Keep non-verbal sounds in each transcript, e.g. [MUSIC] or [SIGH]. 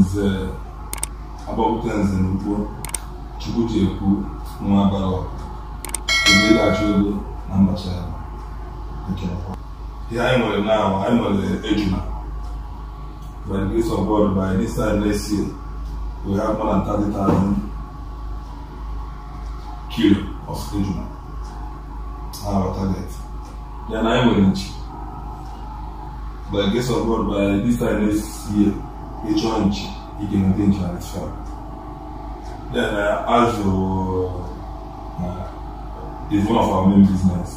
nze agbọpụta nze na chukwu ji ekwu nwa bara ebe ịlachi na mbacha e ihe anyị nwere na anyị nwere ejuna by the grace by dis time next year we have more than 30,000 kilo of ejuna our target na anyị nwere nchi by the grace of God by dis time next year يجونج يجينا دينجا نتفهم then uh, Then uh, is one of our main business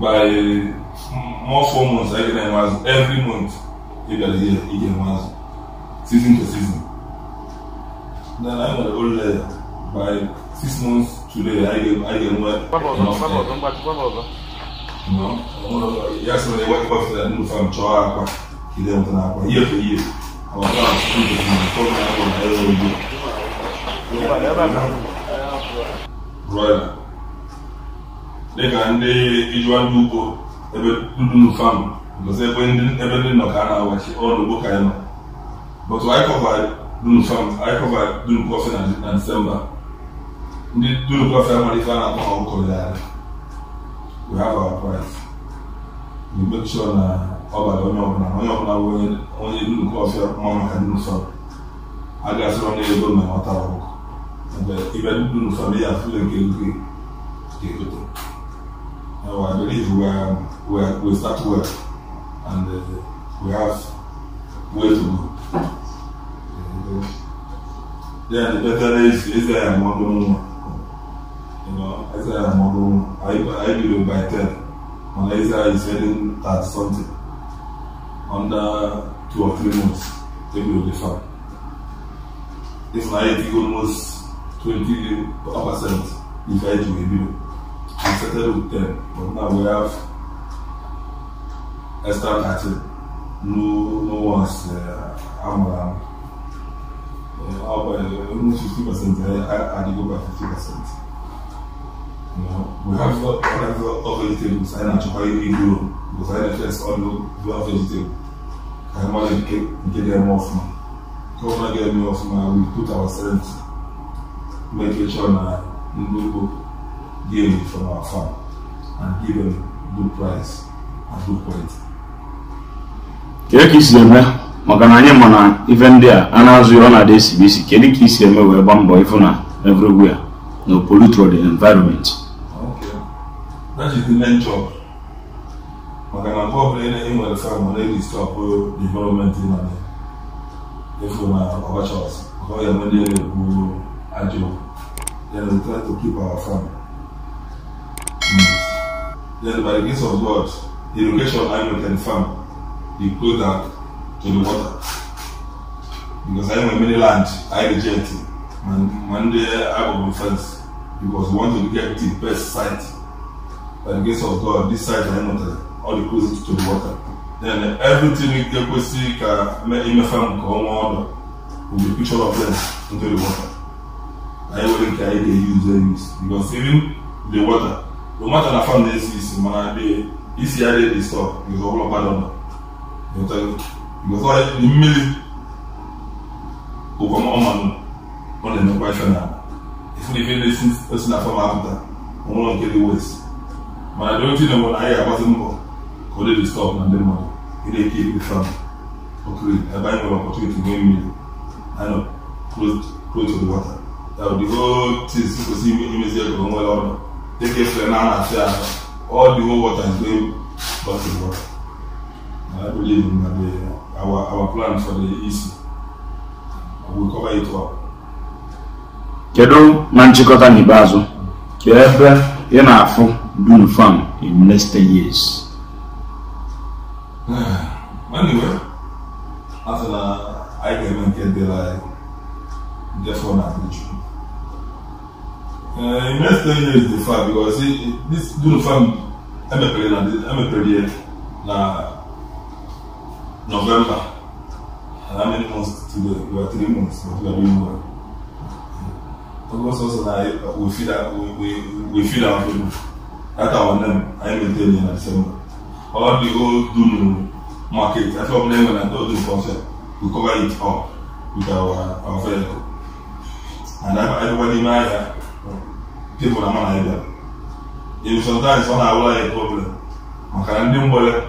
by mm, more four months I can them every month He get here you get season to season then I'm the old lady by six months today I get I get work. no yes when they work off the new farm e levantar com a ia com ia. Ela ndị ijuwa ndị ugbo ebe ndị ebe ndị a na-awachi ọrụ ugbo i anyị nọ. But anyị kọva Ndị a We have our price. We make sure ọ onye ọbụla onye ọbụla bụ onye duru nke ọfịa mma maka ndị nsọ a ga-asịrọ na ego na ọ tara ibe ndị nsọ na ya atụle nke ego ga-egote I believe we we we start well and uh, we have way to go. Yeah, the better is Israel model. You know, Israel model. I I believe by ten, when Israel is heading at something. under two or three months, they will defer. If I take almost 20 percent, if I do a bill, I settled with 10, but now we have extra 30. No, no one's uh, i around. Uh, almost 50%, uh, I, I, I go by 50%. we have all kinds of vegetables. I need to buy iguro because I need test all the vegetables. I want to get, them off now. Come and get me off We put ourselves, make sure we give it from our farm and give them good price and good quality. Kedu ka isi eme maka na anyị ndị a a na-azụ ihe na-ada kedu ka isi eme wee gbaa mbọ ịfụ na everywhere That is the main job. maka na mgbe ọbụla ị na-enwere fam na eri stọpụ development na efu na ọbachọs ka ọ ga-enwe ndị na-ekwu ajọ then we try to keep our farm hmm. then by the grace of god irrigation anglican farm e dey closer to the water because I nwere many land anyị reject ma ndị agbụrụ fence because we want to get the best site by the grace of God this side na All ọ clothes to the water then everything nke kwesịrị make imefe will be picture of them into the water anyị nwere nke anyị ga-eyuzu use because the water no matter na fam na-esi isi mana dị because ọ bụla gbadọ nọ because mmiri ụkọ ọmanụ ọ if emekwa ife na ife na ife or esi na fam apụta ọnwụrụ get waste ma dịochi na nwere anyị ga ka ọ dị dịstọp na ndị mmadụ ịna-eke ibu trump okiri ebe anyị nwere ọpọtụniti nwee mmiri anyị close to the water ya the whole thing imezi ego nwere ọnụ dịka efere na na ahụ all the whole water is going back to the water I believe our, our plan for the east will cover it up. kedu na nchịkọta n'ikpeazụ ka ebe ị na-afụ do the farm in less 10 years. [SIGHS] anyway, after that, I can get the like, therefore, not the truth. Uh, in less 10 years, the farm, because it, it, this do the farm, I'm a period, I'm a period, na November. And how many months to the, we are three months, but we are doing well. Because also, like, we feel that, we, we, we feel our freedom that our name I maintain in December. All the old Dunu market, that's what name when I oh, do this concept, we cover it up with our our vehicle. And everybody in area, people are not idea. If sometimes when I will have a problem, maka ndị mgbere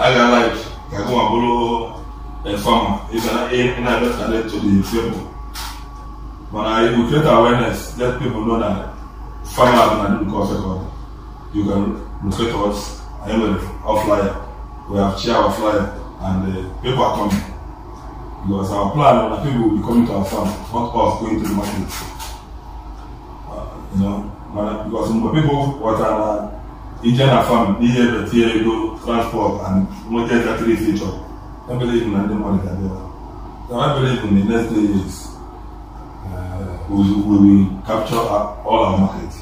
aga like ka gụ ma bụrụ efama ịga na-abịa ka na-eto dị mfe bụ But if we create awareness let people know that find out and do the course record. You can locate us and with our flyer. We have chair our flyer and the uh, paper coming. Because our plan is that people will be coming to our farm, not us going to the market. Uh, you know, because some people what are Indian farm, they have the theory go transport and motor factory feature. I believe in the money that they have. So I believe in the next three years, uh, we will capture our, all our market.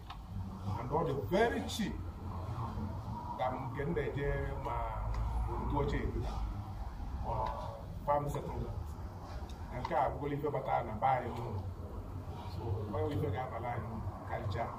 na ọ dị very cheap nke m na-eje ma ndị ochie farm settlement nke a bụgola ife batara na be anyị ụlọ so ife ga-abala anyị karịchaa